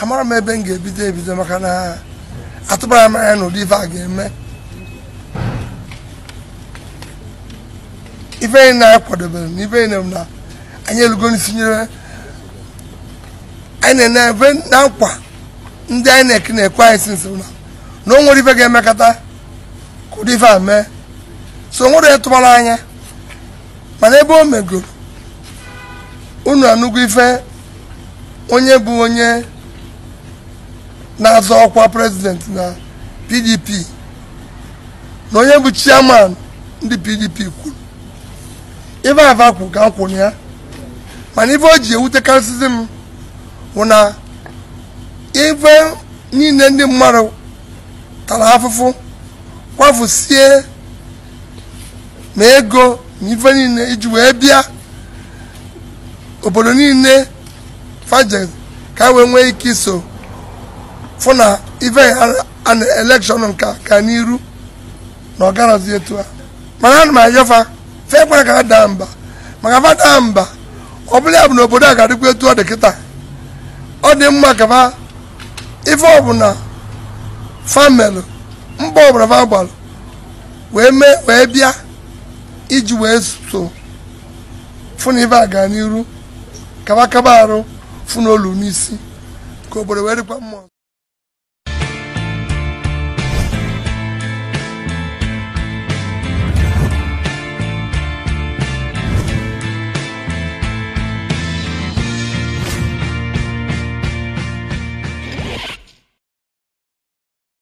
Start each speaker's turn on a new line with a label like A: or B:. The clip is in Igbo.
A: amara m ebe m ga-ebido ebido maka na atụbara m anya na ụdị ife a ga-eme ife na anyị kwadobere na ife na anyị elugo anyị na-eme na nkwa ndị anyị na-eke na-ekwe anyị si nso na o nwere ife ga-emekọta ka ụdị ife a mee so o nwere ịtụbara anya mana ebe o megoro unu anụgo ife onye bụ onye na-azọ ọkwa prezident na pdp na onye bụ chairman ndị pdp kwuru ife afa kwuru ka m kwụrụ ya mana ife o ji ewutekarịsịzi m bụ na ife niile ndị mmadụ tara afụfụ kwafusie ma ego na ife niile iji wee bịa obodo niile faje ka wee nwee ike iso fụ na ife ana elekshọn nke ka n'iru na ọ garazi etu a mana ana m ayọfa fekwa ka ha daa mba maka fa daa mba ọ bụla ya bụ na obodo a ga-adịkwa etu ọ dị kịta ọ dị mma ka fa ife ọbụla famelụ mba ọbụla fa gbalụ wee mee wee bịa iji wee so fụ na ife a gaa n'iru kaba kaba arụ fụ n'olu n'isi ka obodo wee dịkwa mma